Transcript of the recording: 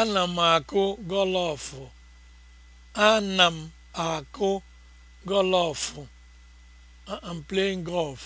Ana m akụ gọlọfụ. Ana m akụ gọlọfụ. I'm playing golf.